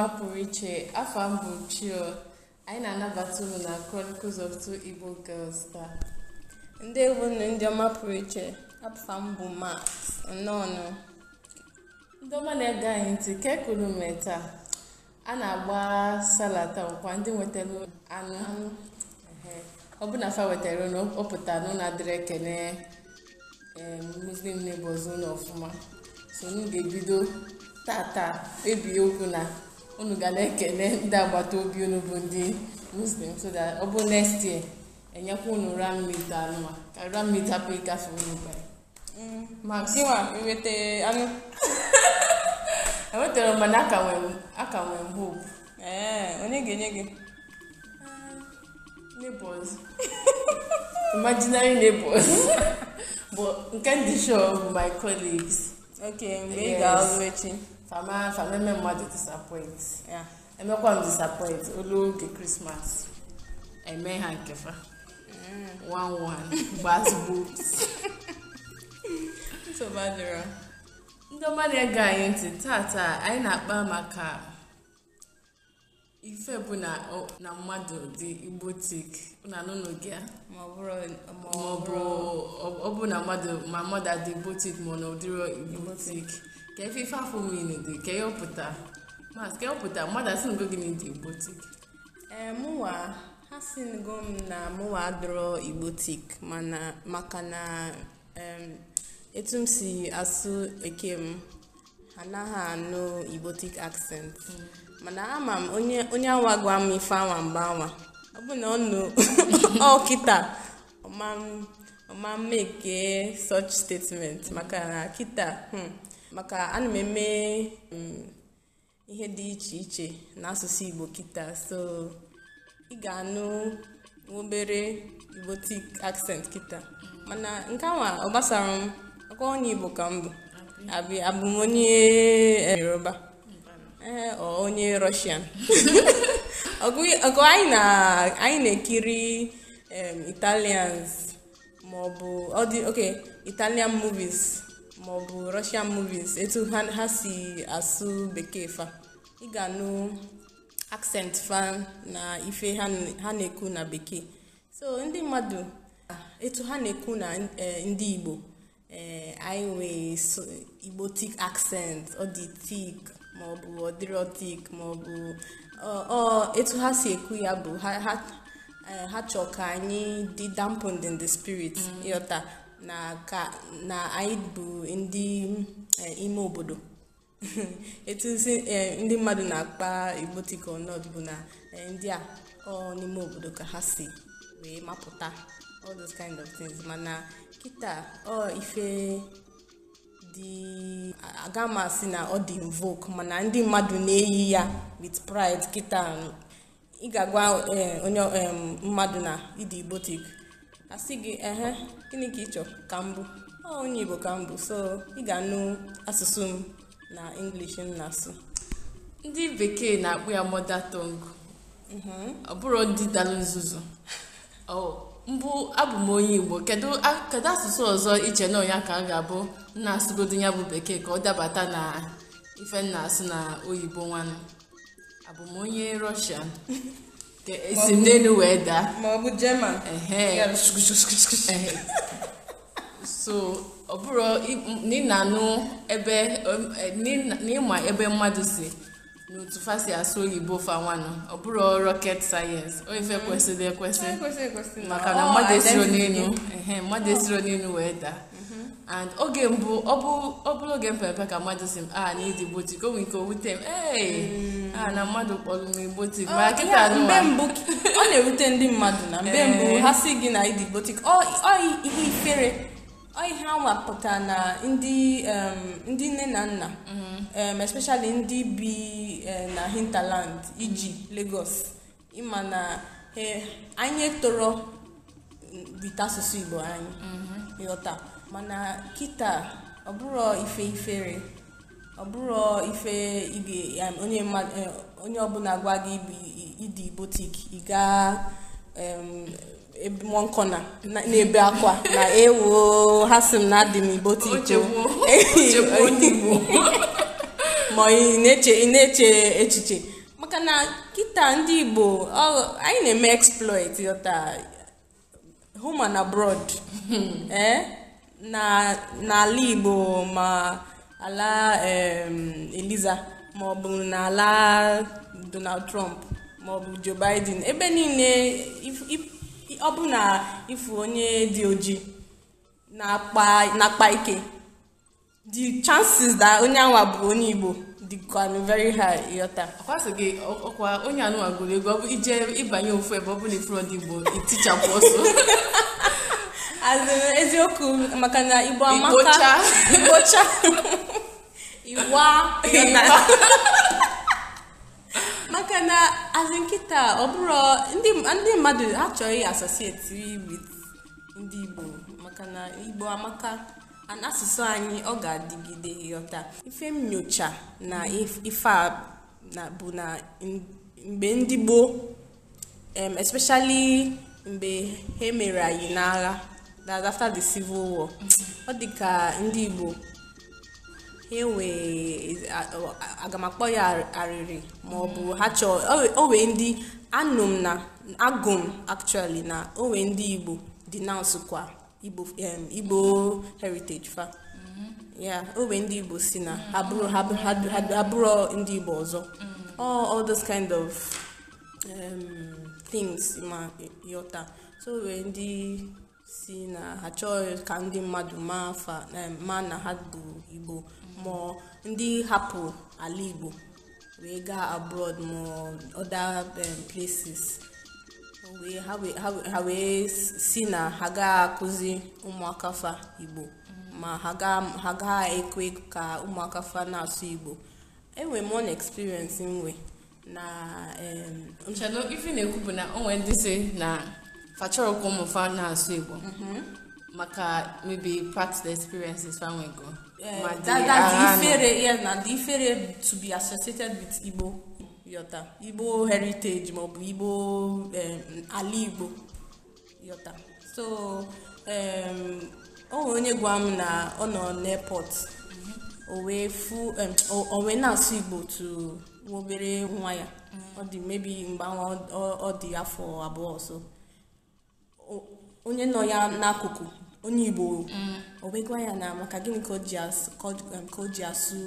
ọma pụrụ iche afọ mbụ bụ chio anyị na-anabata unu na Chronicles of Two Igbo Girls taa ndị egwu ndị ọma pụrụ iche afọ mbụ bụ Max nnọọnụ ndị ọma na-ege anyị ntị ka ekuru a na-agba salata nkwa ndị nwetara anụ anụ ọ bụ na fa wetara unu ọ pụtara na adịrị ekene muslim neighbors ụlọ ọfụma so unu ga-ebido tata ebie okwu na unu ga na-ekele ndị agbata obi unu bụ ndị muslim so that ọ bụ next year enyekwa unu ramid anụma ka ramid hapụ ịgafe unu gwa. ma gịnwa enweta anụ enwetara mana aka nwee m hope ee onye ga-enye gị uh, neighbors imaginary neighbors but nke ndị show bụ my colleagues okay mgbe ị ga-alụ echi fama fama eme mmadụ ya emekwa m disapoint olu oge krismas eme ha nkefa one mm. one gbazugbo nsogbu ndị ọma na-ege anyị ntị taa anyị na-akpa maka ife bụ na mmadụ dị igbotik nanụnụgị ma ọ bụ na mmadụ ma mmadụ adị igbotik ma ọ na ụdịrị igbotik ka ife afọ mmiri dị ka ọpụta mas ka ọpụta mmadụ asị ngo gị na igbo tik ee eh, mụwa ha si ngo m na mụwa adọrọ igbo tik mana maka na etu m si asụ eke m anaghị anụ igbo tik hmm. mana ama m onye awa gwa m ife awa mgbe awa ọ bụ na ọ nụ ọkịta ọma m such statement maka na kịta hmm. maka ana m eme um, ihe dị iche iche n'asụsụ igbo kita so ị ga-anụ obere tik accent kita mana nke awa ọ gbasara m aka onye igbo ka m bụ abụ m onye eh, yoruba ee eh, onye rọshian ọgụ anyị na-ekiri italians maọbụ ọ dị okay italian movies maọbụ russian movies etu ha si asụ bekee fa ị ga-anụ accent fa na ife ha na-ekwu na bekee so ndị mmadụ etu ha na-ekwu na eh, ndị igbo ee eh, anyị nwee igbo tik accent ọ dị tik maọbụ ọdịrọ maọbụ ọ etu ha si ekwu ya bụ ha eh, chọ ka anyị dị dampened in the spirit mm. na ka na anyị bụ ndị e, ime obodo etu e, ndị mmadụ na-akpa igbo tika ọnọdụ bụ na e, ndị a ọ n'ime obodo ka ha si wee mapụta all those kind of things mana kịta ọ ife dị aga m asị na ọ dị invoke mana ndị mmadụ na-eyi ya with pride kịta ị ga-agwa onye mmadụ na ịdị igbotik asị gị ehe gịnị ka ị chọrọ ka m bụ onye igbo ka m bụ so ị ga-anụ asụsụ m na english m na-asụ ndị bekee na-akpụ ya mother tongue mm-hmm. ọ bụrụ ndị dalụ nzuzu oh, mbụ abụ m onye igbo kedu asụsụ ọzọ iche na ka a ga-abụ nna asụgodo ya bụ bekee ka ọ dabata na ife nna asụ na oyibo nwanne abụ m onye rọshian si ndị wee daa ma ọ bụ german so ọ bụrụ n'ịnanụ ebe n'ịma ebe mmadụ si n'otu fa si asụ oyibo fa fanwanụ ọ bụrụ rocket science o ife kwesịrị ekwesị maka na mmadụ esiro n'elu mmadụ esiro n'elu wee daa and oge mbụ ọ bụrụ oge mpepe ka mmadụ si m a ah, na ịdị botik o nwere ike owute m ee mm. a ah, na mmadụ kpọrọ m botik ma kịta mgbe mbụ ọ na-ewute ndị mmadụ na mgbe mbụ eh. ha si gị na ịdị botik ọ ihe ikpere ọ ihe anwa pụtara na ndị ndị nne na nna mm-hmm. especially ndị bi e, na hinterland iji Lagos ịma na anyị toro bite mm, asụsụ Igbo anyị mm-hmm. ịghọta mana kịta ọbụrọ ife ifere ọbụrọ ife eh, onye ọbụla gwa gị ịdị botik ịga mọnkọna na-ebe akwa na ewu ha sị m na dị m botik ma ị na-eche echiche maka na kịta ndị igbo anyị na-eme exploit yọta home and abroad eh n'ala Igbo ma ala Eliza maọbụ n'ala Donald Trump maọbụ Joe Biden ebe niile ọ bụ na ịfụ onye dị oji na-akpa ike the chances that onye anwa bụ onye Igbo dịkwanụ very high ịghọta akwasị gị ọkwa onye anụwa gụrụ ego ọ bụ ije ịbanye ofu ebe ọ bụla ndị Igbo itichapụ ọsọ azụ eziokwu maka na igbo amaka igbocha iwa maka na azụ nkịta ọ bụrụ ndị mmadụ achọghị asosieti wit ndị igbo maka na igbo amaka asụsụ anyị ọ ga-adịgide ghọta ife nyocha na ife a bụ na mgbe ndị gboo especially mgbe ha emere anyị n'agha that after the civil war ọ dị ka ndị igbo aga m akpọ ya arịrị ma ọ bụ ha chọọ o wee ndị anụ m na agụ m actually na o wee ndị igbo denounce kwa igbo heritage fa ya o wee ndị igbo si na ha ndị igbo ọzọ all those kind of um, things ma e, yọta so o wee ndị si na ha chọghị ka ndị mmadụ maa maa na ha bụ igbo ma ndị hapụ ala igbo wee gaa abroad ma other places ha wee si na ha ga-akụzi ụmụaka fa igbo ma ha ga-ekwe ka ụmụaka fa na-asụ igbo enwere m one experience nwe na nchado ife na-ekwu bụ na onwe ndị si na achọrọ ka ụmụ fa na-asụ Igbo maka maybe past experiences fa nwego eh, ma dị ifere ifere to be associated with Igbo yota Igbo heritage maọbụ Igbo eh, ala Igbo yota so o nwere onye gwa m na ọ nọ n'airport mm-hmm. o wee na-asụ Igbo tu obere nwa ya mm-hmm. ọ dị mebi mgbe ọ dị afọ abụọ ọsọ onye nọ ya n'akụkụ onye igbo o wegwa ya na maka gịnị ka o ji asụ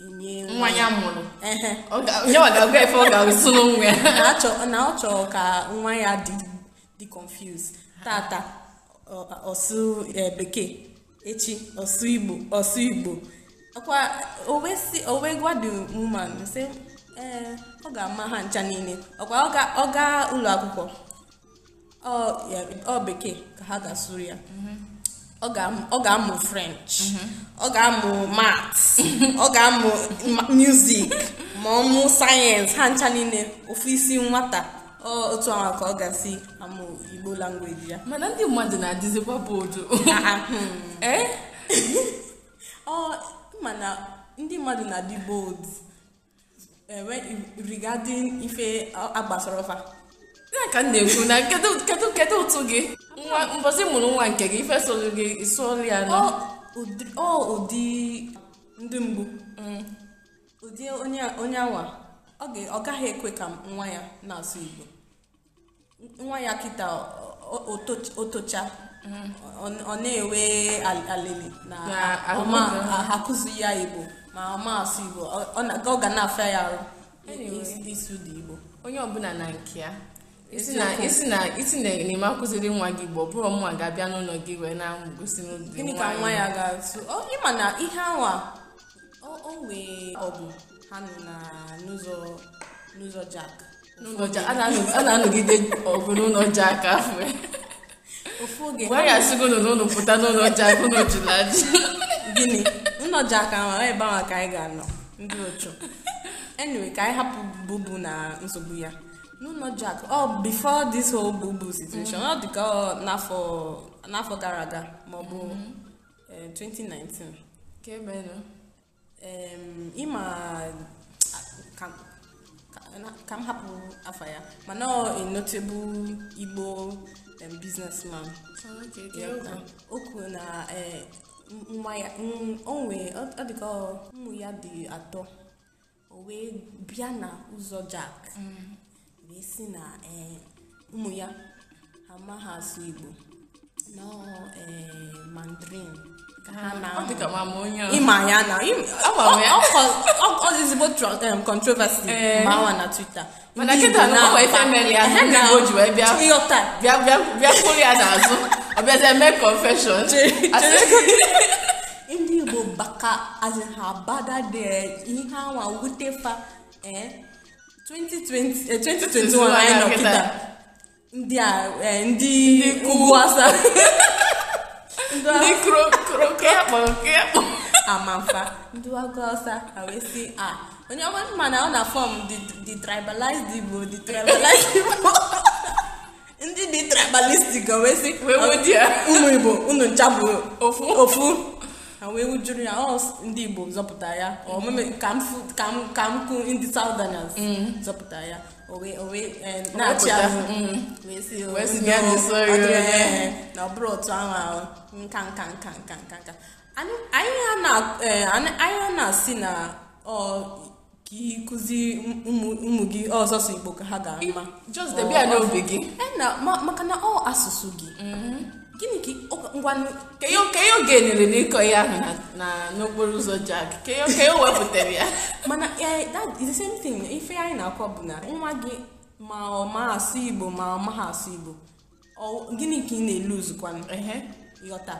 um, nwa ya mụrụ na ọ chọrọ ka nwa ya dị confused tata ọsụ e, bekee echi ọsụ igbo ọsụ igbo Ọkwa owe gwa the woman sị eh, ọ ga-ama ha ncha niile ọkwa ọ gaa ụlọ akwụkwọ ọ bekee ka ha ga-asụrụ ya ọ ga-amụ french ọ ga-amụ maths ọ ga-amụ music ma ọ mụ sayensị ha ncha niile ofu isi nwata otu ahụ ka ọ ga-asị amụ igbo langweji ya mana ndị mmadụ na-adịzikwa boodu eh? mana ndị mmadụ na-adị bold eh, regarding ife agbasara ọfa ya ka m na-ekwu na kedu kedu ụtụ gị nwa mụrụ nwa nke gị ife solu gị solu ya nọ ọ ụdị ndị mbụ, mm. ụdị onye awa, ọ gaghị ekwe ka nwa ya na-asụ Igbo nwa ya kịta otocha mm. ọ na-enwe alili na akụzi ya Igbo ma ọ asụ Igbo ọ ga na-afịa ya arụ isu dị Igbo onye ọbụla na nke ya isi na isi na enyem akụziri nwa gị igbo bụrụ mma ga-abịa n'ụlọ gị wee na-gosi n'obi gịnị ka nwa ya ga-atụ ịma na ihe awa o wee ọgụ ha nọ na n'ụzọ n'ụzọ jak a na-anọgide ọgụ n'ụlọ jak afọ ofu oge wee gasịgo ụlọ n'ụlọ pụta n'ụlọ jak ụlọ julaji gịnị ụlọ jak ahụ ebe ahụ ka anyị ga-anọ ndị ochu enwe ka anyị hapụ bubu na nsogbu ya no not jack oh before this whole n'afọ gara aga maọbụ bụ 2019 ka ịma ka m hapụ afa ya mana a notable igbo businessman o na nwa ya onwe ya dị atọ o wee bịa na ụzọ jack mm. wee sị na e, ụmụ ya ha ma asụ igbo e, mandarin ịma ya na e, na twitter mana kịta na ọkwa ife mere ya ndị igbo ji wee bịa bịa kwụrụ ya n'azụ ọ bịazie mee confession ndị igbo baka azị ha bada de ihe anwa wute fa 2021 anyị nọ ndị a eh, ndị ndị ndị ọsa ah, onye ọma mma na ọ na fọm dị tribalized igbo the tribalized igbo ndị dị tribalistic wee sị ụmụ igbo unu ncha bụ ofu ha wee wujuru ya ọ ndị Igbo zọpụta ya ka m kụ ndị Southerners zọpụta ya na-achị mm. eh, azụ na ọ bụrụ otu ahụ ahụ nka nka nka nka nka nka anyị ha na-asị na ka ịkụzi ụmụ gị ọzọsọ Igbo ka ha ga-ama just debe ya n'obi gị maka na ọ asụsụ gị gịnị ka Ka ihe oge enyere n'ịkọ ihe ahụ na- n'okporo ụzọ jack ka ihe wepụtara ya mana the same thing ife anyị na-akwa bụ na nwa gị ma ọ ma asụ igbo ma ọ maghị asụ igbo gịnị ka ị na-eluzukwanụ ịghọta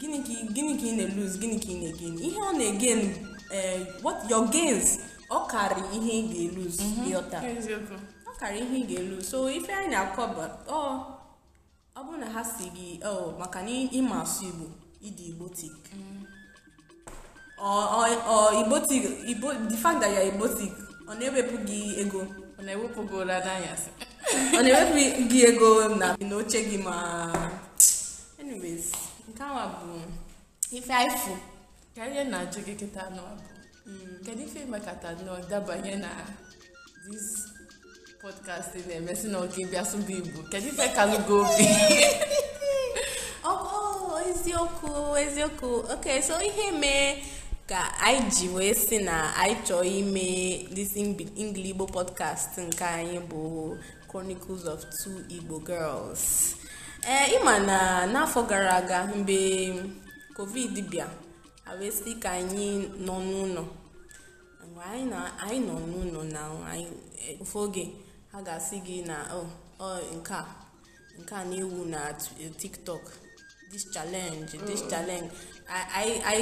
gịnị ka ị na-eluz gịnị ka ị na-egen ihe ọ na-egen eh, what your gains ọ karị ihe ị ga-eluz mhm. ịghọta ọ karị ihe ị ga-eluz so ife anyị na-akọ bụ ọ bụrụ na ha si gị maka na ịma asụ igbo ịdị igbo tik igbo the fact that ya igbo tik ọ na-ewepụ gị ego ọ na-ewepụ gị ụra n'anya n'anyasị ọ na-ewepụ gị ego na n'oche gị ma anyways nke awa bụ ife aifu ka ihe na-ajụ gị kịta nọ mm. kedu ife mekata nọ dabanye na this podcast podcasti na-emesi na oke bịa sụba igbo kedu ife kalụgo obi oh, oh, eziokwu eziokwu ok so ihe mee ka anyị ji wee si na anyị chọọ ime this English Igbo podcast nke anyị bụ Chronicles of Two Igbo Girls eh, ịma na n'afọ gara aga mgbe covid bịa awesị ka anyị nọ n'ụlọ anyị nọ n'ụlọ na ụfọdụ eh, oge ha ga-asị gị na ọ oh, oh, nke a nke a na-ewu na eh, tiktok this challenge this mm. challenge i i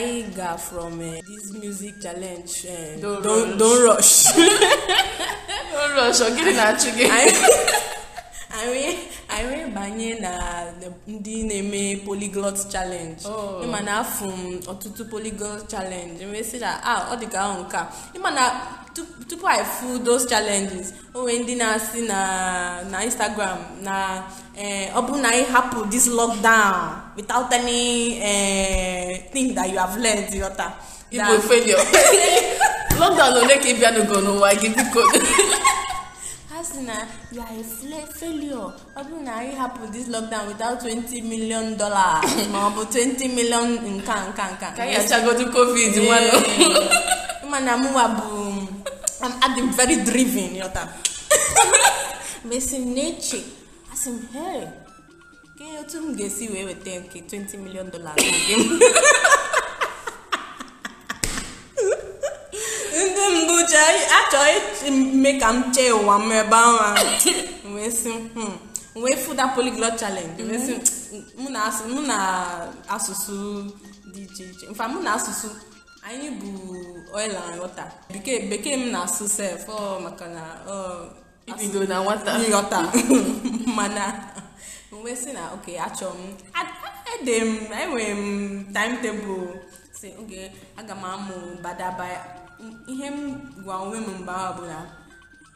i ga from eh, this music challenge eh, don't rush don't rush ọ gịnị na-achụ gị anyị anyị banye na ndị na-eme polyglot challenge oh. ịma na afụ ọtụtụ polyglot challenge si na ah ọ ka ahụ nke a ịma na tupu i fu those challenges o nwee ndị na-asị na na instagram na eh, ọ bụrụ na anyị hapụ this lockdown without any eh, thing that you have learned yọta. igbo failure lockdown ole ka ị bịanụgo n'ụwa gị biko ha si na ya failure ọ bụrụ na anyị hapụ this lockdown without 20 million dollars ma ọ bụ 20 million nka nka nka ka ya chagodu covid nwanụ mana mụwa bụ adị very driven yọta mesi m na-eche asị m hey ke otu m ga-esi wee weta nke 20 million dollars ndị mbụ ji achọghị si mme ka m chee ụwa m ebe ahụ wee si wee fụda polyglot challenge wee mụ na asụsụ dị iche iche mfa mụ na asụsụ anyị bụ oil and water bekee bekee m na-asụ sef oh, maka oh. na ibido na nwata mana wee si na oke achọ m ede m enwere m timetable si oge aga m amụ ya. ihe m gwa onwe m mgbe ahụ bụ na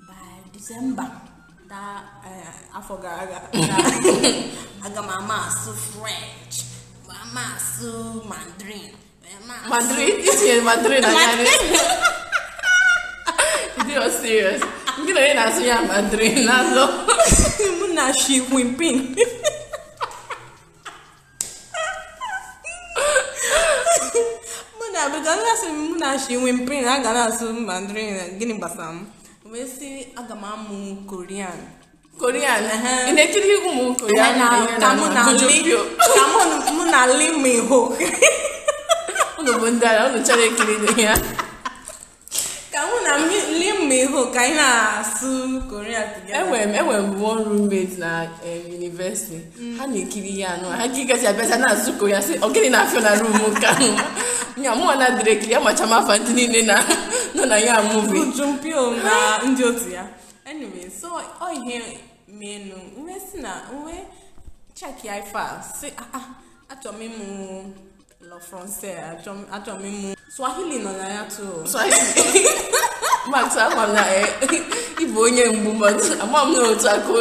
by disemba taa e, afọ gara aga aga m ama asụ french ma ama asụ mandarin mandarin itinye mandarin anya you're serious. Gina ndị na so yà Madrid lásán. Mo na ṣe wimpin. asị m mụ na ashi wemprin a aga na-asụ mandarin gịnị gbasara m wee sị aga m amụ korean korean ị na-ekiri ụmụ korean ka mụ na li miho unu bụ ndị ala unu chọrọ ikiri ya ka mụ na mi ụmụ ihu ka anyị na-asụ koria enwere m enwere m one roommate na yunivesiti eh, mm. ha na-ekiri ya anụ ha gịgazi abịaza na-asụ koria sị ogịnị na afịa na rum nke ahụ ya mụnwa na dịrị ekiri ya macha mafa ndị niile nọ na ya muvi jumpio na ndị otu ya anyway so ọ ihe menu nwe si na nwe cheki ife a si ah, ah, achọrọ m lọ francais achọ m swahili nọ na ya too swahili max ama m na e, ịbụ onye mgbu mmadụ ama m na otu aka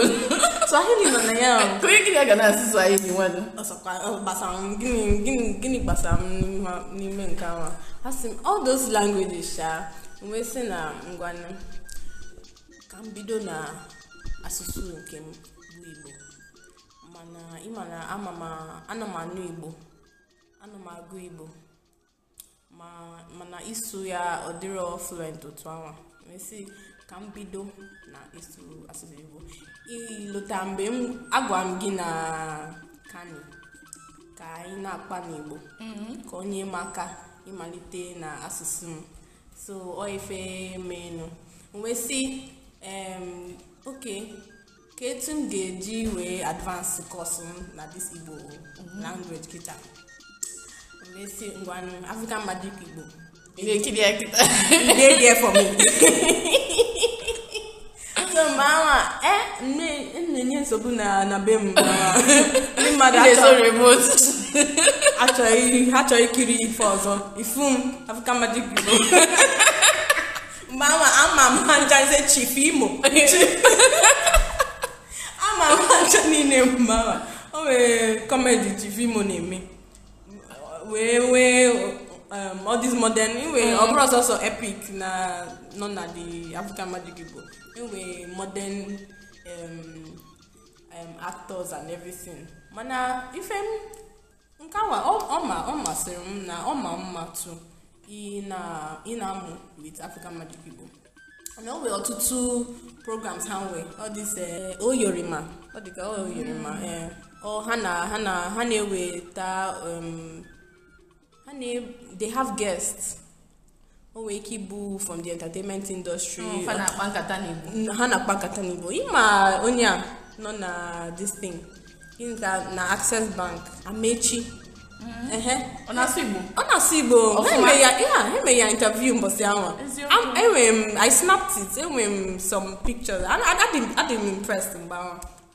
swahili nọ na ya onye gịnị ga na-asị swahili nwadụ gbasara m gịnị gịnị gịnị gbasara m n'ime nke ahụ a? sị m all those languages sha wee sị na ngwanụ ka m bido na asụsụ nke m bụ igbo mana ịma na ama m ana m anụ igbo ana m agụ igbo mana isu ya ọ dịrọ fluent otu ahụ mesi ka m bido na isu asụsụ igbo ilota mgbe m agwa m gị na kani ka anyị na-akpa n'igbo mm-hmm. ka onye m aka ịmalite na asụsụ m so ọ ife menu wee oke ka etu m ga-eji wee advance kọsụ m na this igbo mm-hmm. language kịta na-esi ngwa African Magic Igbo ị na-ekiri ya kịta ị ga-ebi efọ m so mgbe awa m e, e na-enye nsogbu na na be m ndị mmadụ achọghị achọghị ikiri ife ọzọ ifu m African Magic Igbo mgbe awa ama m ha njaze chif imo ama m ha ncha niile mgbe awa o nwere kọmedi chif imo na-eme wee wee um, all this modern iwe ọ ọbụrụ ọsọsọ epic na nọ na the african magic igbo iwe modern um, um, actors and everything mana ife m nke awa ọ masịrị m na ọ ma mma tụ ị na-amụ with african magic igbo na o ọtụtụ programs ha nwee ọ eh, oyorima ọ dịka oyorima mm. eh, ha na ha na ha na-eweta ha na they have guests o nwere ike ibu from the entertainment industry oh, ha na-akpa nkata n'igbo ha na-akpa nkata n'igbo ịma onye a nọ na this thing na access bank amechi ọ na-asụ igbo ọ na-asụ igbo ya interview mbọsị ahụ enwere m i snapped it enwere m some pictures adị m impressed mgbe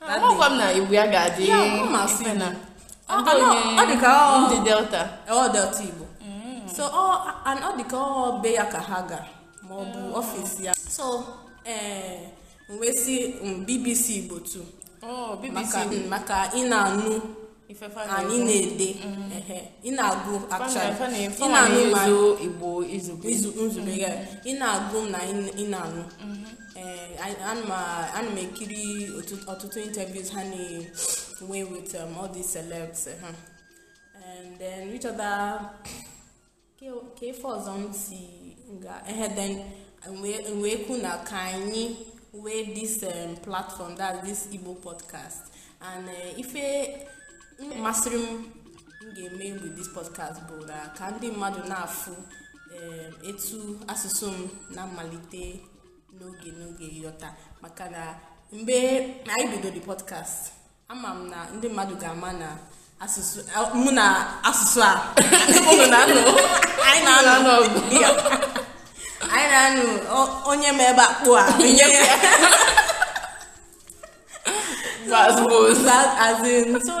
ahụ m na igbo ya ga-adị ọ dị ka ndị delta ọ oh, delta igbo mm. so ọ oh, dị ka ọ be ya ka ha ga ma ọ bụ ọfịs mm. ya so ee eh, wee si mm, bbc igbo tu oh, maka ị na-anụ anyị na-ede ị na-agụ ị na-anụ ma nzube ya ị na-agụ na ị na-anụ mm-hmm. ana eh, m uh, ekiri ọtụtụ interviews ha na-enwe with um, all these celebs eh, ha and then which other ka ife ọzọ m si ehe then wee kwu na ka anyị wee this um, platform that this igbo podcast and uh, ife masịrị m m ga-eme with this podcast bụ na ka ndị mmadụ na-afụ etu asụsụ m na mmalite n'oge n'oge ịghọta maka na mgbe anyị bido the podcast ama m na ndị mmadụ ga-ama na asụsụ mụ na asụsụ a na-anụ anyị na-anụ anyị na-anụ onye ma ebe akpụ a so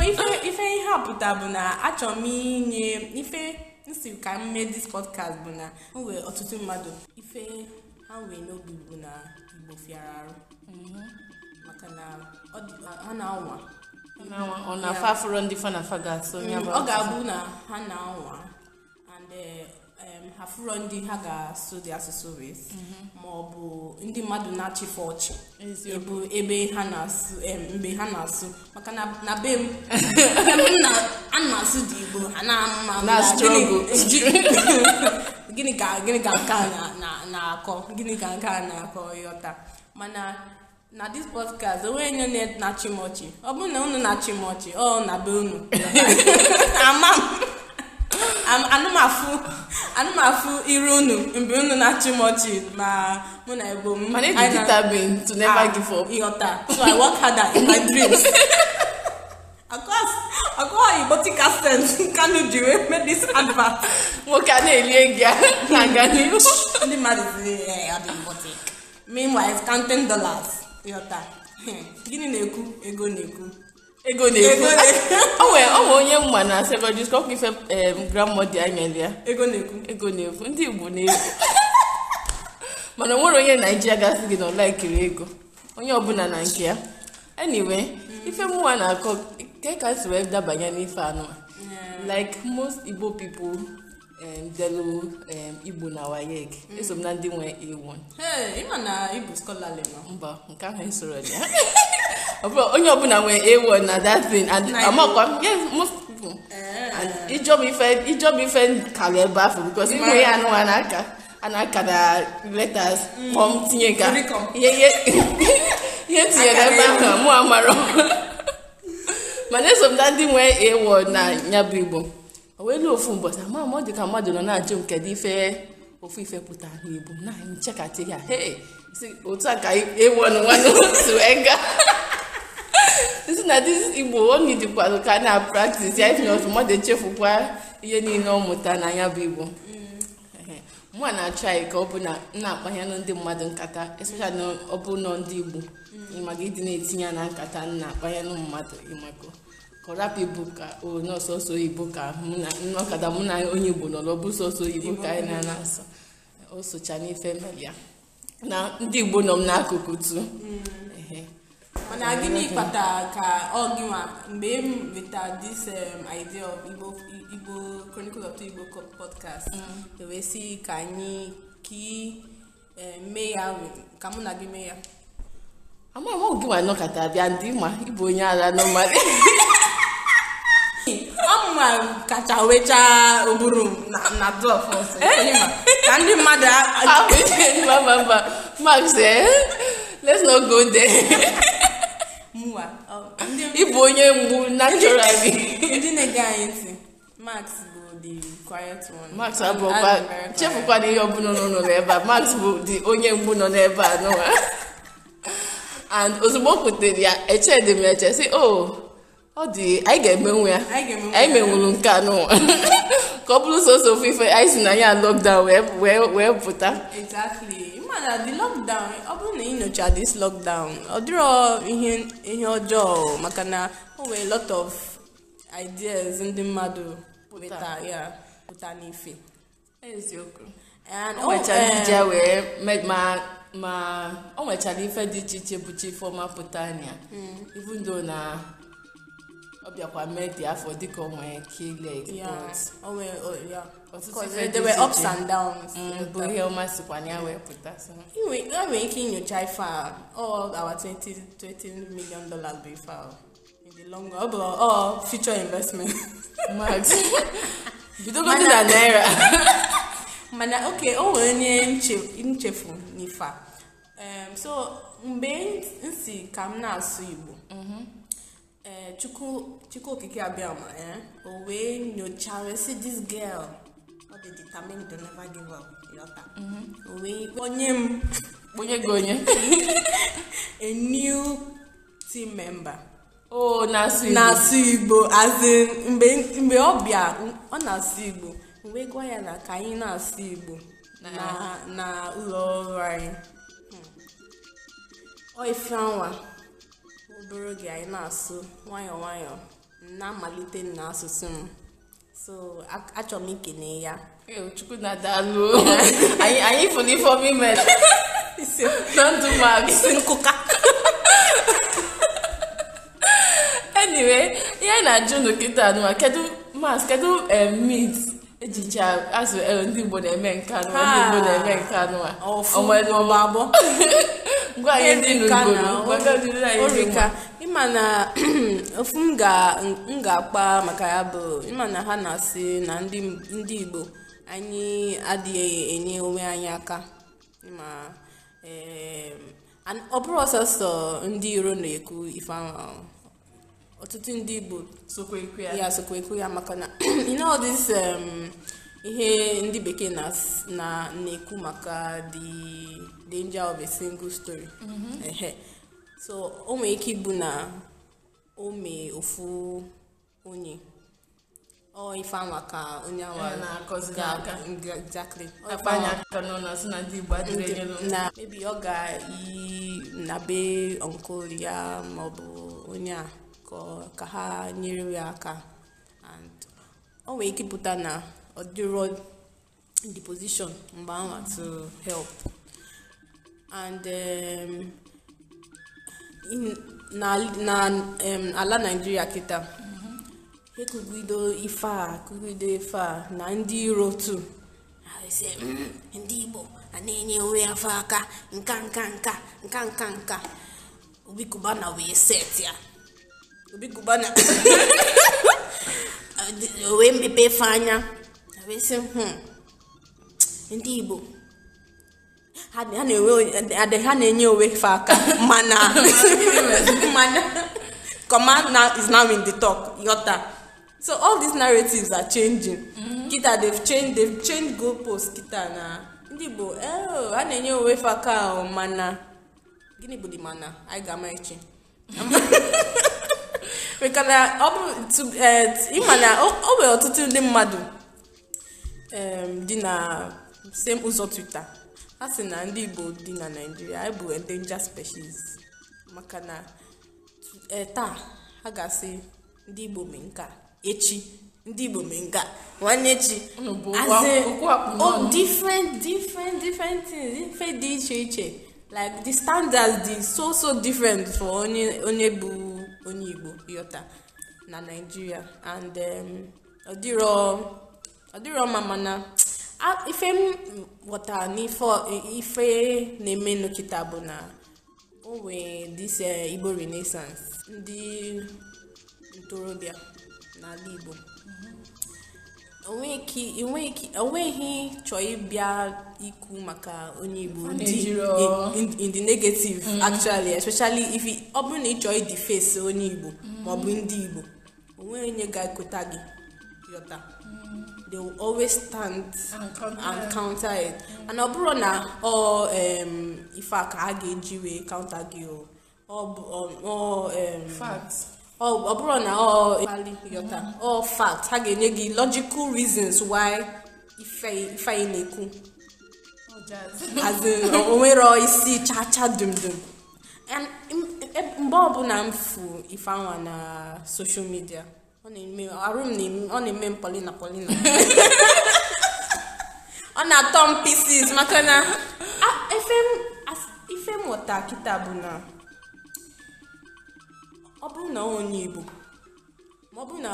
ife ihe a pụta bụ na achọrọ m inye ife nsi ka m mee dis podcast bụ na m nwere ọtụtụ mmadụ ife ha nwere n'obi bụ na igbo fịara arụ mm-hmm. maka na ha na-anwa ọ na-afa afụrụ ndị fa na fa ga-atụ mm, ọ ga-abụ na ha na-anwa and eh, ha fụrụ ndị ha ga-asụ dị asụsụ wee mm-hmm. ma ọ bụ ndị mmadụ na-achịfe ọchị ebu ebe ha na-asụ mgbe ha na-asụ maka na be m a na-asụ dị igbo ha na-ama gịnị ka gịnị ka nke a na-akọ gịnị ka nke a na-akọ ịghọta mana na dis podcast onwe onye na-achị m ọchị ọ bụrụ na unu na-achị m ọchị ọ na be unu ama m anụmafụ iru unu mgbe unu na-achị m ọchị ma mụ na ebo m to never ah, give up ịghọta so i work harder in my dreams antibiotic accent Kanu ji wee mee this advert nwoke a na-elie gị na-aga n'ihu ndị dollars yọta gịnị na-ekwu ego na-ekwu ego na-ekwu o nwere onye mma na secondary school ife grandmother ya ya ego na-ekwu ego na-ekwu ndị Igbo na-ekwu mana onwere onye naijiria gasị gị na ego onye ọbụla na nke ya ife mụwa na-akọ nke ka esi wee dabanye n'ife anụ like most igbo people delu um, um, igbo na 1 eso m na ndị nwe ewu mba nke ahụ esoro ya onye ọbụla nwee 1 na that thing and amakwa yes most people eh. and ijob ife kara ebe afọ bikos ịnwe ya anụwa aka na mm. tinye ka ihe tinyere ebe ahụ mụ amarọ mana eso m na ndị nwee ịwụ na ya e bụ e e igbo o wee ofu ụbọchị ama m ọ dị ka mmadụ nọ na-ajụ m kedu ife ofu ife pụtara n'igbo na anyị nchekatị ya hee otu a ka ịwụ nwanne otu wee gaa si na dị igbo o nidikwalụ ka na praktis ya ifina otu mmadụ echefukwa ihe niile ọ mụta na ya bụ igbo mụa na-achọ anyị ka ọ bụ na m na-akpanyelụ ndị mmadụ nkata especially ọ bụ nọ ndị igbo ịmaga mm. ịdị na-etinye ya na nkata na akpanyelụ mmadụ ịmako kọrapụ ibu ka onye ọsọsọ oyibo ka ọkada mụ na onye igbo nọrọ bụ sọsọ oyibo ka anyị ah, na-asọ o socha n'ife ya na ndị igbo nọ m n'akụkụ tu mm. mana gịnị kpatara ka ọ gịnwa mgbe m weta this um, idea of igbo chronicle of igbo podcast mm. e wee si ka anyị ka um, mee ya ka mụ na gị mee ya amaghị m gị ma nọkọta bịa ndị ma ịbụ onye agha nọmali ọmụma kacha wechaa ụbụrụ na dọf eh? ka ndị mmadụ ah, mba max eh? let's not go there ịbụ onye mgbu naturally ndị na-ege anyị ntị max Max abụọkwa chefukwana ihe ọbụla nọ n'ụlọ ebe a Max bụ dị onye mgbu nọ n'ebe a nụwa and ozugbo o kwutere ya dị m eche si, o oh, ọ dị anyị ga-emenwu ya anyị menwuru nke a n'ụwa ka ọ bụrụ soso ofu ife anyị si na ya lockdown wee wee pụta exactly na the lockdown ọ bụrụ na inyocha dis lockdown ọ dịrọ ihe ihe ọjọọ maka na o nwere lot of ideas ndị mmadụ pụta ya pụta n'ife eziokwu oh, eh, wee ma ma o nwechara ife dị iche iche bụchi ifeọma pụta anya ivundo mm. na ọ bịakwa dị afọ dịka onwe ka ile ups and downs mm, ihe ọma iche ya wee pụta nwere ike inyocha ife a all our 20 million dollars bụ ife ọ bụ all future investment dị na naira mana oke o were nye nchefu nifa so mgbe nsi ka m na-asụ igbo mhm. ee eh, chukwu okike abịa ma ya eh, o wee nyochara si this girl ọ dị dị to never give up yọta mhm. o wee m kpọnye gị onye a new team member o oh, na-asụ igbo na-asụ igbo as in mgbe ọ bịa ọ na-asụ igbo wee gwa ya na ka anyị na-asụ Igbo na ụlọ ọrụ anyị hmm. ife anwa obere oge anyị na-asụ nwayọọ nwayọọ na-amalite n'asụsụ m so achọrọ m ikene ya chukwu na daalụ anyị fụrụ ifeọma ime na ndụ ma isi nkụka anyway ihe na-ajụ unu kịta anụma kedu mas kedu eh, mit ejicha azụ ndị Igbo na-eme nke anụ ndị Igbo na-eme nke anụ a ọnwere ọma abụ ngwa anyị ndị n'ugbo ịma na ofu m ga-akpa m ga maka ya bụ ịma na ha na-asị na ndị ndị Igbo anyị adịghị enye onwe anyị aka ịma ọ bụrụ ọsọsọ ndị iro na-ekwu ife ọtụtụ ndị igbo ya sokwekwe ya maka na you know all um, ihe ndị bekee na-ekwu maka the danger of a single story mm-hmm. so o nwere ike ịbụ na o mee ofu onye ọ ife anwa ka onye anwa exactly na maybe ọ ga-eyi na be ọnkụl ya maọbụ onye a ka ha nyere ya aka and o nwere ike pụta na ọ dịrọ the position mgbe anwa to help and um, in, na, na um, ala Nigeria kịta ekugido ife a ekugido ife a na ndị iro tu mm, ndị Igbo a na-enye onwe afọ aka nka nka nka nka nka nka Obi na wee set ya obikuba hmm. na o wee mepe efe anya wee sị ndị Igbo ha na-enye onwe fe aka mana command is now in the talk yota so all these narratives are changing mm-hmm. kita they've changed they've changed goalposts kita na ndị Igbo oh, ha na-enye onwe fe aka oh, mana gịnị bụ dị mana anyị ga-ama echi mekana ọ bụ ịma na ọ nwere ọtụtụ ndị mmadụ um, dị na same ụzọ twitter ha sị na ndị igbo dị na naijiria anyị bụ endanger species maka na uh, taa ha ga-asị ndị igbo mee nka echi ndị igbo mee nwanne echi oh, different different different things ife dị iche iche like the standards dị so so different for onye onye bụ onye igbo yọta na naijiria and um, ọ dịrọ mma mana ife m ghọtara n'ife na-eme taa bụ na onwe dis uh, igbo renaissance ndị ntorobịa n'ala igbo onweghị chọọ ịbịa ikwu maka onye igbo in the negative mm-hmm. actually especially if ọ bụrụ na ị chọọ ịdị face onye igbo maọbụ mm-hmm. ndị igbo onwe onye ga-ekota gị yọta mm-hmm. they will always stand and counter it and ọ bụrụ na ọ ife a ka a ga-eji wee counter gị ọ ọ bụrụ na ọ yọta ọ fact ha ga-enye gị logical reasons why anyị na-ekwu onwere oh, isi chacha dumdum e, mgbe ọbụla m fụ ifeanwa na ọ na-eme m polina polina ọ na-atọ m pieces maka na ife m kịta bụ na ọ bụrụ na onye igbo ma ọ bụrụ na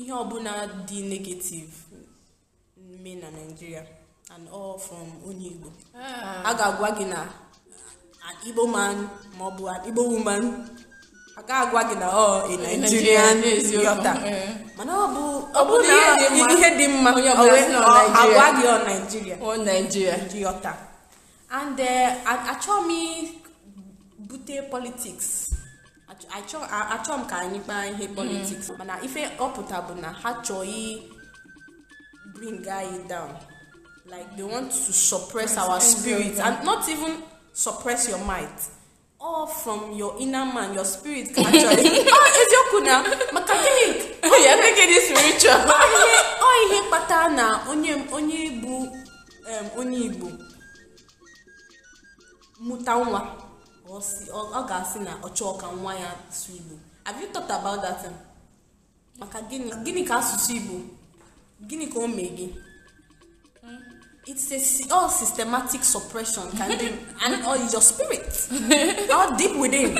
ihe ọbụla dị negativ mme na naijiria and all from onye igbo ah. a ga-agwa gị na igbo man ma ọ bụ igbo woman a ga-agwa gị na ọ oh, nigerian yọta eh. mana ọ bụ na ihe dị mma agwa gị ọ naijiria yọta and eh, achọghị m bute politiks achọ m ka anyị kpaa ihe politiks mm. mana ife ọpụta bụ na ha chọghị bring anyị down like they want to suppress our spirit and not even suppress your might all from your inner man your spirit ka actually ah eziokwu na maka gịnị ya ekweghị dị spiritual ọ ihe kpata na onye onye bụ onye Igbo mụta nwa ọ ga-asị na ọ chọọ ka nwa ya asụ Igbo have you thought about that maka gịnị gịnị ka asụsụ Igbo gịnị ka o mee gị hmm? it's a all systematic suppression can be and it's your spirit all deep within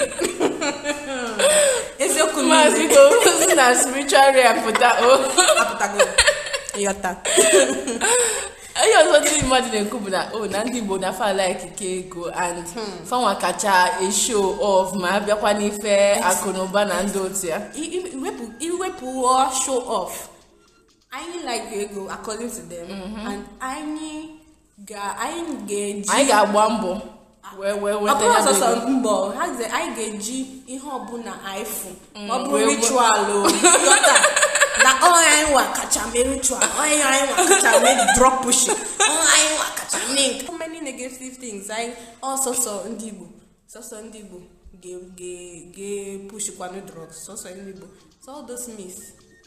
eziokwu maazi ka na spiritual realm pụta o oh. apụtago ịghọta onye ọzọ ndị mmadụ na-ekwu bụ na o oh, na ndị Igbo nafa alaikike ego and hmm. fanwa kacha esho of ma bịakwa n'ife akụnụba na ụba na ndị otu ya iwepụ show off anyị like ego according to them mm-hmm. and anyị ga-eji ga anyị ga-agba mbọ wee wee weta ya bụ ego mbọ anyị ga-eji ihe ọbụla anyị fụ ọ bụrụ ritual o oh. na onye oh, anyị nwa kacha mere ritual onye oh, anyị nwa kacha mere drop pushing ọya oh, anyị nwa kacha mee nke many negative things anyị ọsọsọ ndị igbo sọsọ ndị igbo ga-epushikwanụ drugs sọsọ ndị igbo so all those myths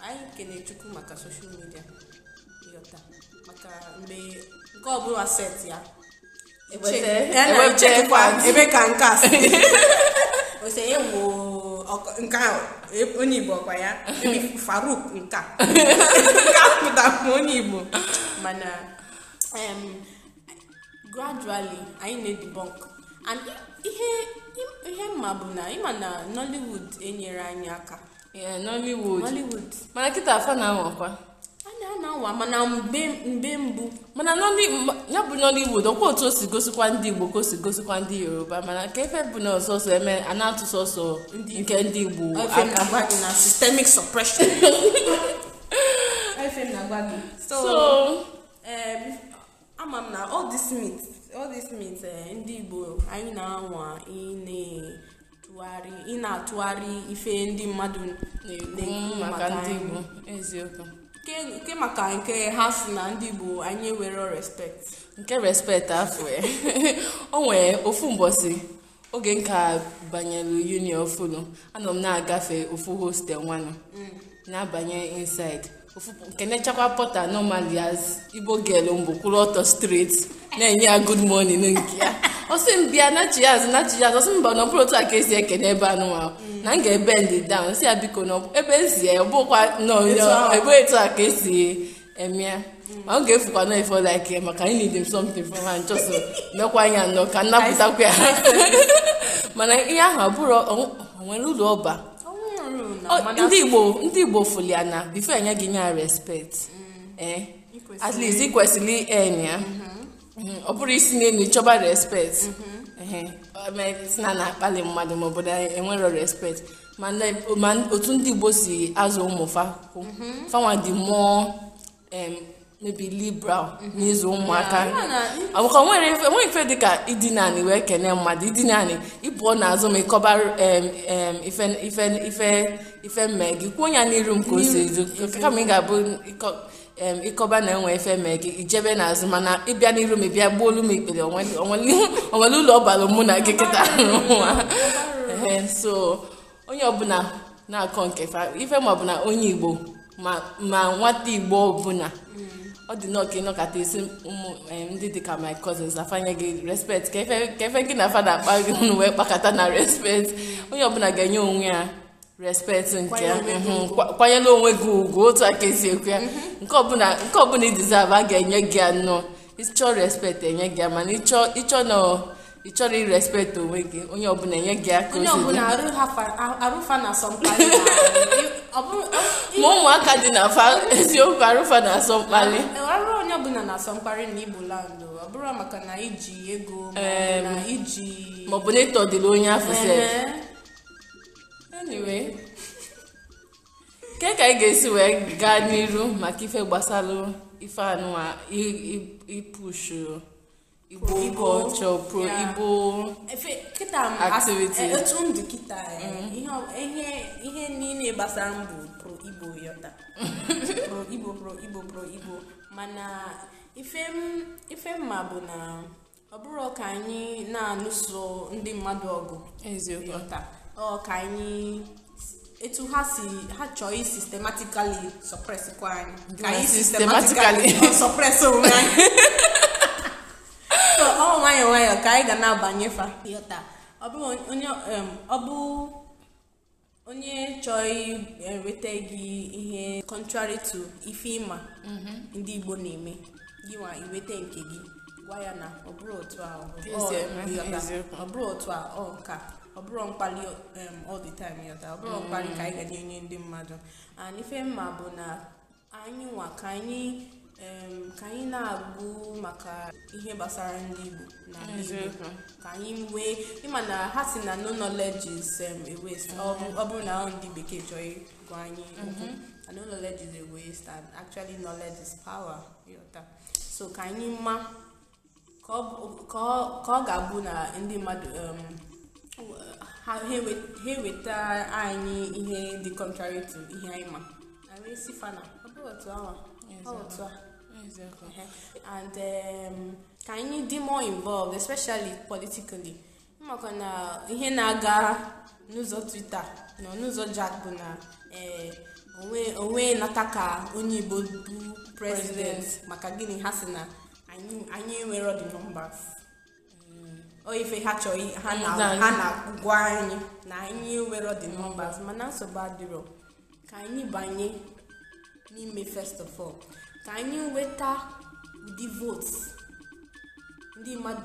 anyị kene chukwu maka social media yota maka mgbe nke ọbụla set ya ebe ka nke a si ose nke ahụ onye igbo ọkwa ya faruk nka pụtara onye igbo mana gradually anyị na-edebunk and ihe mma bụ na ịma na nollywood enyere anyị aka nollywood mana kịta afa na-anwakwa ha na-anwa mana mgbe mgbe mbụ mana ya bụ Igbo dọkwa otu o si gosikwa ndị igbo ka o si gosikwa ndị yoruba mana ka efe bụ na ọsọsọ eme a na-atụ sọsọ nke ndị igbo na systemic suppression so ama m na all this meat all this meat eh, ndị igbo anyị na-anwa ine ị na-atụgharị ife ndị mmadụ na-ekwu maka ndị igbo eziokwu nke maka nke ha si na ndị bụ anyị ewere respect nke respect afọ ya o ofu mbọsị oge nka banyere union fulu anọ m na-agafe ofu hostel nwanụ na-abanye inside ofu nke nechakwa as igbo girl mbụ kwụrụ ọtọ street na-enye ya good morning nke ya ọsị m bịa na chiaz na chiaz ọsị mba na ọbụrụ otu a ka esi n'ebe anụ anụmanụ na m ga-ebe ndị down si ya biko na ebe esi ya ọbụkwa ebe etu a ka esi eme ya ma ọ ga-efukwa na ifo like ya maka anyị need something from ha nchọsọ mekwa anya nọ ka nnapụtakwa ya mana ihe ahụ abụrụ onwere ụlọ ọba ndị igbo ndị igbo fulia na bifo enye gị ya respect mm. eh, at least ị kwesịrị enye Mm, ọ bụrụ isi n'elu chọba respect na na-akpali mmadụ ma obodo anyị enwero respect ma otu ndị Igbo si azụ ụmụ fanwa mhm. dị mụọ mebi liberal mhm. n'ịzụ ụmụaka maka enweghị ife dịka idina anị wee kene mmadụ idina anị ịpụọ azụ ma ịkọba ife mme gị kwuo ya n'iru m ka o si ezo kama ị ga-abụ ịkọba na enwe efe mee gị ijebe n'azụ mana ịbịa n'iru m ịbịa gbuo olu m ikpere onwere ụlọ ọbara mụ na gị kịta so onye ọbụla na-akọ nke ife ma ọbụla onye igbo ma nwata igbo ọbụla ọ dị nnọọ ka ịnọkọta isi ụmụ ndị dịka my cousins afanye gị respect ka efe gị na fada akpa gị wee kpakọta na respect onye ọbụla ga-enye onwe ya respect nke mhm. kwanyere onwe gị ugwu otu aka esi ekwu ya mhm. nke ọbụla ị deserve ga-enye gị ya nnọọ ịchọọ respect enye gị ya mana ịchọ na ị chọrọ irespekt onwe gị onye ọbụla enye gị aka ma ụmụaka dị na fa eziokwu arụfa na-asọ mkpali e, arụ onye ọbụla na-asọ mkparị na igbo landụ ọ bụrụ maka na iji ego maọbụ na ịtọdịrị onye afọ sef anyway nke ka anyị ga-esi wee gaa n'iru maka ife gbasalu ife anụwa ipushu igbo ọchọ pro igbo activity etu ndụ kịta e, mm-hmm. ihe niile gbasara mbụ pro igbo yọta pro igbo pro igbo pro igbo mana ife mma bụ na ọ bụrụ ka anyị na alụso ndị mmadụ ọgụ eziokwu taa ọ ka anyị etu ha si ha chọọ i sistematikali sọpresikwa anyị ka anyị sistematikali sọpres onwe anyị ọ nwayọọ nwayọọ ka anyị ga na-abanye fa yọta ọ bụ onye ọ bụ onye chọọ enweta gị ihe contrary to ife ịma mhm. ndị Igbo na-eme gị nwa iweta nke gị gwa ya na ọ bụrụ otu a ọ bụrụ otu a ọ ọ bụrụ mkpali all the time yọta ọ bụrụ mkpali ka anyị ga na-enye ndị mmadụ and ife mma bụ na anyị nwa ka anyị ka anyị na-agụ maka ihe gbasara ndị Igbo na ka anyị nwee ịma na ha si na no knowledge is a waste ọ bụrụ na ndị bekee chọọ ịgwa anyị okwu mm-hmm. no knowledge is a waste and actually knowledge is power yọta so ka anyị ma ka ọ ga-abụ na ndị mmadụ ha weta uh, anyị ihe dị contrary to ihe anyị ma anyị si fana ọ bụ otu awa ọ a and um, ka anyị dị more involved especially politically maka na ihe na-aga n'ụzọ twitter nọ n'ụzọ jack bụ na eh, onwe nata ka onye igbo bụ president maka gịnị ha si na anyị nwere the ife ha chọrọ ha na-agwa anyị na anyị nwere the numbers mm. mana nsogbu adịrọ ka anyị banye n'ime first of all ka anyị nweta ụdị votes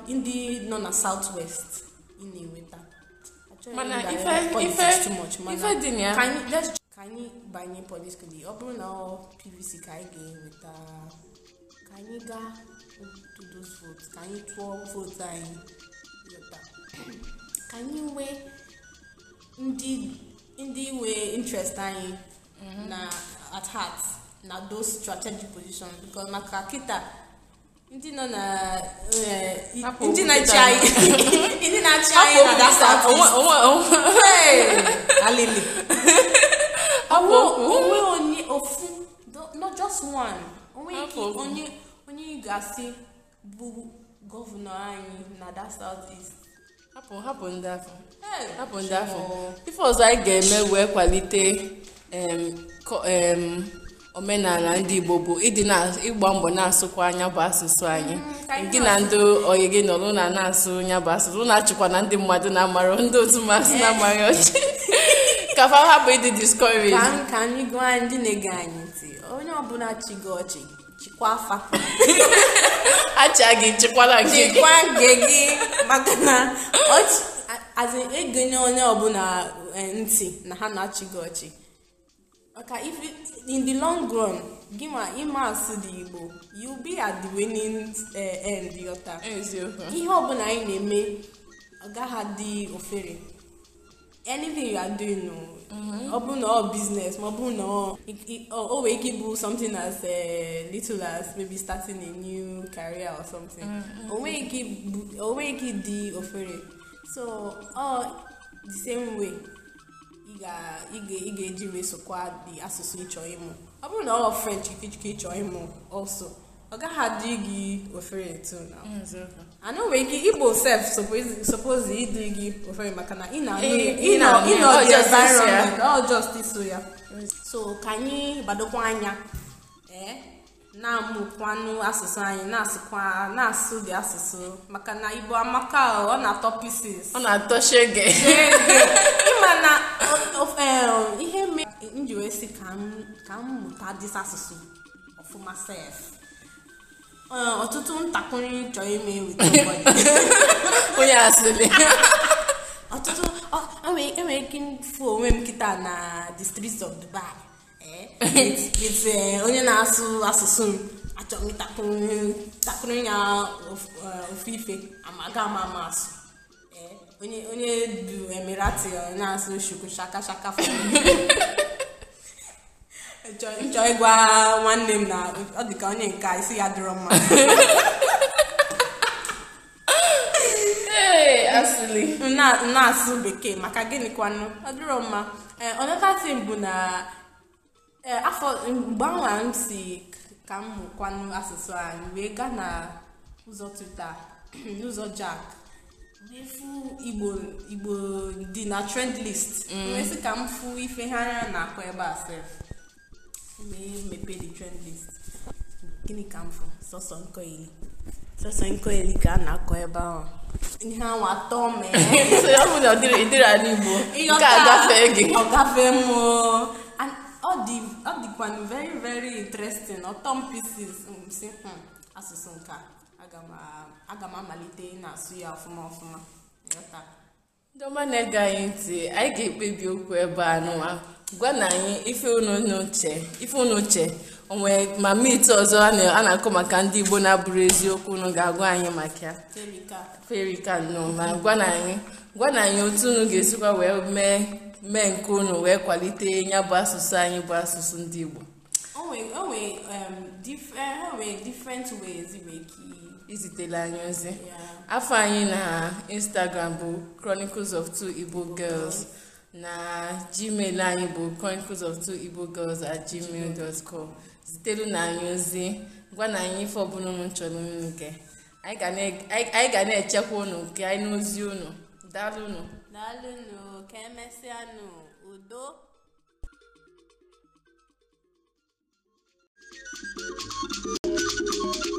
ndị nọ na southwest ị na-enweta mana ife dị ya ka anyị banye politikali ọ bụrụ na ọ pvc ka anyị ga-enweta ka anyị gaa those votes ka anyị tụọ votes anyị ka anyị nwee ndị nwee interest anyị mhm. na at heart na those strategic positions because maka kita ndị nọ na eh, ndị na-achị anyị ndị na-achị anyị na dasa alili onwe onye ofu not just one onwe onye onye ga-asị bụ gọvanọ anyị na that south east hapụ hapụ ndị afọ hapụ ndị afọ ife ọzọ anyị ga-eme wee kwalite omenala ndị igbo bụ ịdị na ịgba mbọ na-asụkwa anya bụ asụsụ anyị mm, gị na ndị oyi gị nọ na na-asụ nya bụ asụsụ na-achịkwa na ndị mmadụ na-amara ndị otu masị na-amaghị ọchị ka hapụ ịdị discouraged ka anyị gụọ ndị na-ege anyị ntị onye ọbụla chi gị ọchị kwa afa acha gị chekwala nke gị chekwa nke gị maka na azi egonye onye ọbụla e, ntị na ha na-achị gị ọchị maka if in the long run gị ma ịma asụ dị igbo you be at the winning e, end yọta ihe ọbụla anyị na-eme ọ gaghị adị ofere anything you are doing mm-hmm. ọ bụrụ na ọ business ma ọ bụrụ na o nwee ike ịbụ something as eh, little as maybe starting a new career or something mm-hmm. o nweghị ike dị ofere so ọ the same way ị ga-eji mesokwa dị asụsụ ịchọ ịmụ ọ bụrụ na ọ french ịchọ ịmụ also ọ gaghị adị gị ofere too na ana nwere ike igbo sef suppose ịdị gị ofere maka na ịnọ eh, the environment all justice ya so ka anyị gbadokwa anya eh? na-amụkwanụ asụsụ anyị na-asụkwa na-asụ dị asụsụ maka na igbo amaka ọ na-atọ pieces ọ na-atọ shege ịma na um, ihe mere m ji wee sị ka m mụta dis asụsụ ọfụma sef ọtụtụ ntakịrị chọrọ ime weta onye asịrị ọtụtụ enwere ike ịfụ onwe m kịta na the streets of Dubai onye na-asụ asụsụ m achọrọ m ntakịrị ya ofu ife amaga ama ama asụ onye du emirati na-asụ shuku shaka shaka fọ nchọ ịgwa nwanne m na ọ dị ka onye nka isi ya dịrọ mma na-asụ bekee maka gịnị kwanụ ọ dịrọ mma another thing bụ na afọ mgbe ahụ m si ka m mụkwanụ asụsụ anyị wee gaa na ụzọ twitter n'ụzọ jack efu igbo igbo dị na trend list mm. wee sị ka m fụ ife ha na akwa ebe a sef wee mepee the trend list gịnị ka m fụ sọsọ nkoili sọsọ nkoili ka a na-akọ ebe ahụ ihe anwụ atọ mee ọ bụ na ọ dịrị ala igbo nke agafee gị ọ gafee m ọ dịkwanụ very very interesting ọtọ m pieces si asụsụ nke aga m amalite na-asụ ya ọfụma ọfụma ndị ọma na-ege anyị ntị anyị ga-ekpebi okwu ebe a n'ụwa gwa na anyị ife unu uche onwe ma mit ọzọ a na-akọ maka ndị Igbo na-abụrụ eziokwu unu ga-agwa anyị maka ya ferika nọ ma gwa na anyị gwa na anyị otu unu ga-esikwa wee mee mee nke unu wee kwalite ya bụ asụsụ anyị bụ asụsụ ndị Igbo um, e, izitela anyị ozi afọ anyị na Instagram bụ Chronicles of Two Igbo Girls na gmail anyị bụ chronicles of igbo girls at gmail dot com zitelu na anyị ozi gwa na anyị ife ọbụla unu chọrọ unu nke anyị ga na-echekwa ụnụ nke anyị n'ozi ụnụ daalụnụ daalụnụ ka emesịanụ udo Thank you.